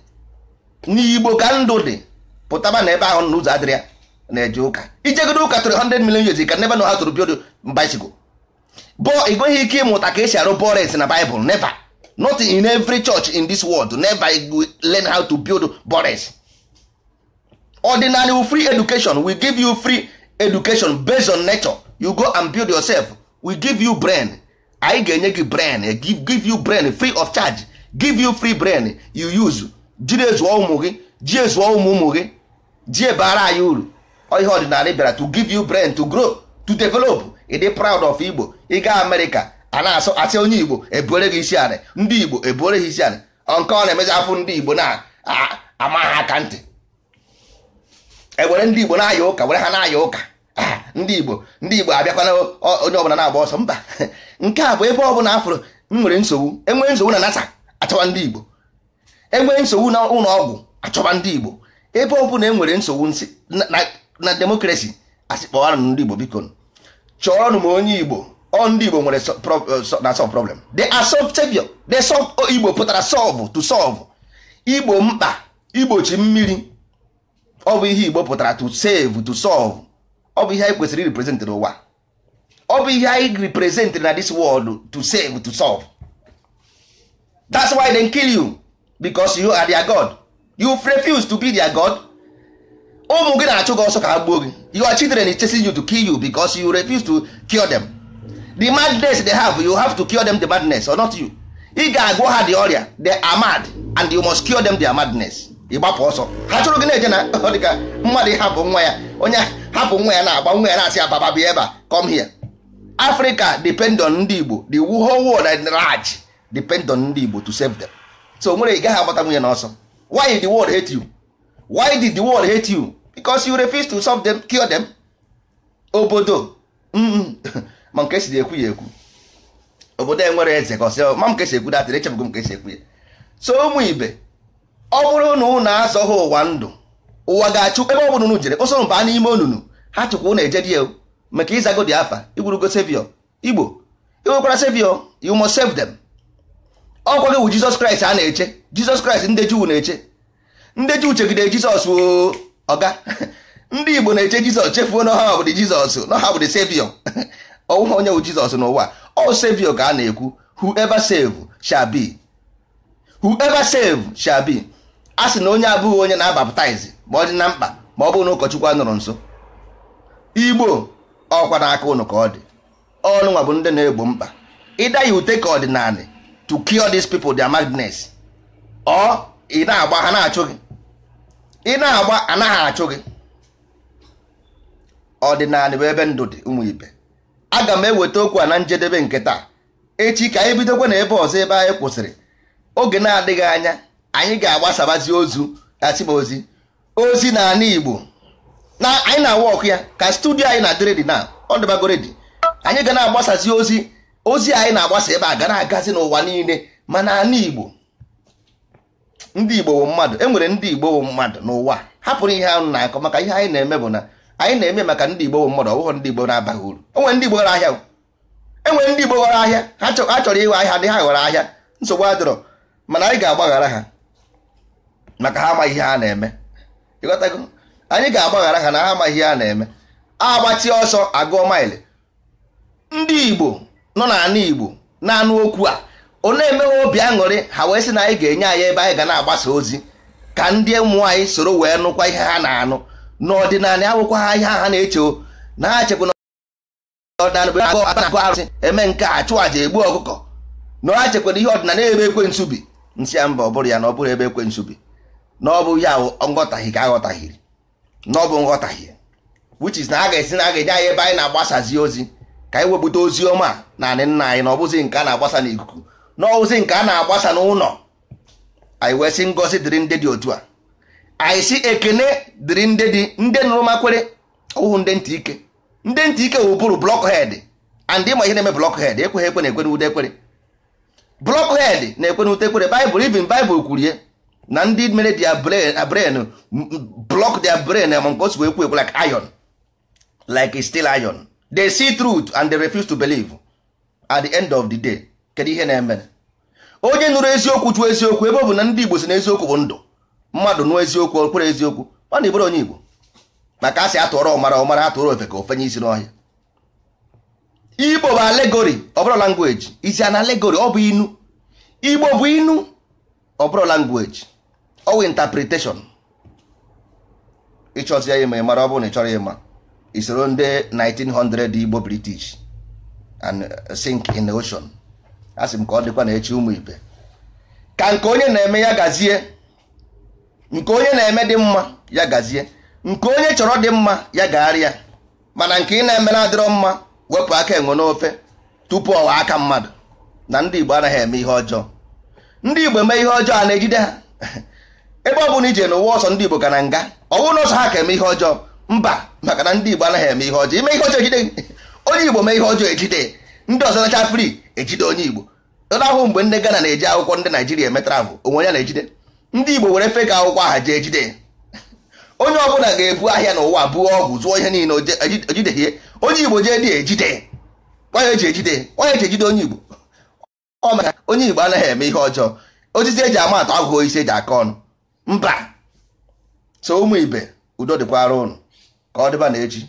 S1: n'igbo ka ndụ dị pụtaba na ebe ahụ n'ụzọ adịrị ya na-eje ụka ijegodo ụka tụrụ 100 million years ka nebe na ha tụrụ biodo bicycle bụọ ị nweghị ike ịmụta ka esi arụ bores na Bible neva not in every church in this world never learn how to build bores ordinary free education will give you free education based on nature you go and build yourself we give you brain anyị ga-enye gị brain give you brain free of charge give you free brain you use jiri ezuọ ụmụ gị ji ezuo ụmụ ụmụ gị ji ebara anyị uru ihe ọdịnala bịara to give you brain to grow to develop ịdị proud of igbo ịga amerịka a na-asụ asị onye igbo ebuere gị isi anị ndị igbo ebuere gị isi anị nke ọ na-emezi ndị igbo na-ama ha aka ntị ewere ndị igbo na-aya ụka were ha na-aya ụka ndị igbo ndị igbo abịakwana onye ọbụla na-agba ọsọ mba nke a bụ ebe ọbụla afụrụ m nwere nsogbu enwee nsogbu na nasa achọba ndị igbo enwee nsogbu na ụlọ ọgwụ achọba ndị igbo ebe ọbụla e nwere nsogbu na demokrasi asịkpọwanụ ndị igbo biko chọọrọ m onye igbo ọ ndị igbo nwere eh, na solve problem they are solve savior oh, igbo pụtara solve to solve igbo mkpa igbochi mmiri ọ bụ ihe igbo pụtara to save to solve ọ bụ ihe anyị kwesịrị represent n'ụwa ọ bụ ihe anyị represent na this world to save to solve that's why they kill you because you are their god you refuse to be their god ụmụ gị na-achụ gị ọsọ ka ha gbuo gị your children is chasing you to kill you because you refuse to kill them the madness they have you have to cure them the madness or not you ị ga-agwọ ha the ọrịa they are mad and you must cure them their madness ịgbapụ ọsọ ha chụrụ gị na-eje na dịka mmadụ ịhapụ nwa ya onye hapụ nwa ya na-agba nwa ya na-asị ya baba bịa ebe a come here Africa depend on ndị Igbo the whole world at large depend on ndị Igbo to save them so nwere ị gaghị agbata nwunye n'ọsọ why the world hate you why did the world hate you because you refuse to solve them cure them obodo ma nke si ekwu ya ekwu obodo enwere eze ka ọsị oh, ma m kesi ekwu datịrị echebugo m kesi ekwu ya so ụmụ ibe ọ bụrụ na na-azọ azọghị ụwa ndụ ụwa ga-achụ ebe ọ bụrụ unu jere ụsọ mba n'ime onunu ha chụkwa unu ejedi ya maka ịzago dị afa igwurugo sevio igbo iwekwara sevio you must save them ọkwa gị bụ jizọs kraịst a na-eche jizọs kraịst ndị juu na-eche ndị juu chegide jizọs ọga ndị igbo na-eche jizọs chefuo na ha bụdị jizọs na ha bụdị sevio ọwụwa onye bụ jizọs n'ụwa ọ sevio ka a na-ekwu hu save shall shabi. save a sị na onye abụghị onye na-abaptize ma ọ dị na mkpa ma ọ bụrụ na ụkọchukwu anọrọ nso igbo ọkwa aka ụnụ ka ọ dị ọnụnwa bụ ndị na-egbo mkpa ịda ya ute ka ọdịnala to cure these people their madness ọ ị na-agba ha na-achụ gị ị na-agba anaghị achụ gị ọdịnala bụ ebe ndụ dị ụmụ ibe aga m eweta okwu a na njedebe nke taa echi ka anyị bidokwa na ebe ọzọ ebe anyị kwụsịrị oge na-adịghị anya anyị ga-agbasabazi ozu asịba ozi ozi na ala Igbo na anyị na-awa ọkụ ya ka studio anyị na-adịrịdị na ọdịbagoredi anyị ga na-agbasazi ozi ozi anyị na-agbasa ebe a gara agazi n'ụwa niile mana ala Igbo ndị Igbo bụ mmadụ e nwere ndị Igbo bụ mmadụ n'ụwa hapụrụ ihe anụ na-akọ maka ihe anyị na-eme bụ na anyị na-eme maka ndị Igbo bụ mmadụ ọbụghọ ndị Igbo na-abaghị uru enwere ndị Igbo ghọrọ ahịa enwere ndị Igbo ghọrọ ahịa ha chọrọ ịghọ ahịa dị ha ghọrọ ahịa nsogbu adịrọ mana anyị ga-agbaghara ha maka ha amaghị ihe ha na-eme anyị ga-agbaghara ha na ha amaghị ihe ha na-eme agbachi ọsọ agụọ maịlị ndị igbo nọ n'ala igbo na-anụ okwu a ọ na-emewe obi aṅụrị ha wee sị na anyị ga-enye anyị ebe anyị ga na-agbasa ozi ka ndị ụmụ anyị soro wee nụkwa ihe ha na-anụ n'ọdịnala awụkwa ha ihe ha na-eche na ha chekwa na ọdịnala agụ arụsị eme nke a chụọ aja egbu ọkụkọ na ha chekwana ihe ọdịnala ebe ekwe bi nsị ya mba ọ bụrụ ya na ọ bụrụ ebe ekwe bi na ọ bụ ya nghọtahie ka aghọtaghiri na ọ bụ nghọtahie which is na a ga-esi na a ga-enye anyị ebe anyị na-agbasazi ozi ka anyị wepụta ozi ọma na anị nna anyị na ọ nke a na-agbasa n'ikuku na ozi nke a na-agbasa n'ụlọ anyị wee sị ngọzi dịrị ndị dị otu a anyị si ekene dịrị ndị dị ndị nụrụ makwere ụhụ ndị ntị ike ndị ntị ike wụbụrụ blọkhed and ịma ihe na-eme blọkhed ekweghị ekwe na ekwe n'ude blọk blọkhed na-ekwe n'ute ekwere baịbụl ivin baịbụl kwurie na ndị mere dia brain block their brain ma nke osi ekwu ekwu like iron like still iron they see truth and they refuse to believe at the end of the day kedu ihe na-eme onye nụrụ eziokwu chụọ eziokwu ebe ọ bụ na ndị igbo si na eziokwu bụ ndụ mmadụ nụọ eziokwu okpere eziokwu ọ na ibụrụ onye igbo maka a sị atụọrọ ọmara ọmara atụrụ ofe ka ofenye isi n'ọhịa igbo bụ alegori ọbụrụ language isi an alegori ọ bụ inu igbo bụ inu ọbụrụ language ọwụ interpretation ịchọzi ya ịma ịmara ọ bụrụ na ị chọrọ ịma isoro ndị 1900 Igbo British and uh, sink in the ocean asị m ka ọ dịkwa na echi ụmụ ibe ka nke onye na-eme ya gazie nke onye na-eme dị mma ya gazie nke onye chọrọ dị mma ya gagharịa mana nke ị na-eme na-adịrọ mma wepụ aka enwe n'ofe tupu ọwa aka mmadụ na ndị Igbo anaghị eme ihe ọjọọ ndị Igbo eme ihe ọjọọ a na-ejide ha ebe ọ bụla ije n'ụwa ọsọ ndị Igbo ka na nga ọ bụrụ na ọsọ ha ka eme ihe ọjọọ mba maka na ndị Igbo anaghị eme ihe ọjọọ ime ihe ọjọọ ejide onye Igbo mee ihe ọjọọ ejide ndị ọzọ nacha fri ejide onye Igbo ụlọ ahụ mgbe ndị Ghana na-eji akwụkwọ ndị Naijiria emetara bụ onwe ya na-ejide ndị Igbo were feka akwụkwọ aha jee ejide onye ọbụla ga-ebu ahịa n'ụwa buo ọgwụ zụọ ihe niile ejideghie e onye Igbo jee dị ejide onye eji ejide eji ejide onye Igbo ọ maka onye Igbo anaghị eme ihe ọjọọ osisi eji ama atụ aghụghọ isi eji aka ọnụ mba so ụmụ ibe udo dịkwara ụnụ ka ọ dịba na echi